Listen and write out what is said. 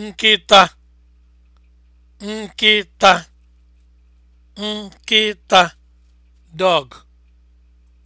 nkịta nkịta nkịta dog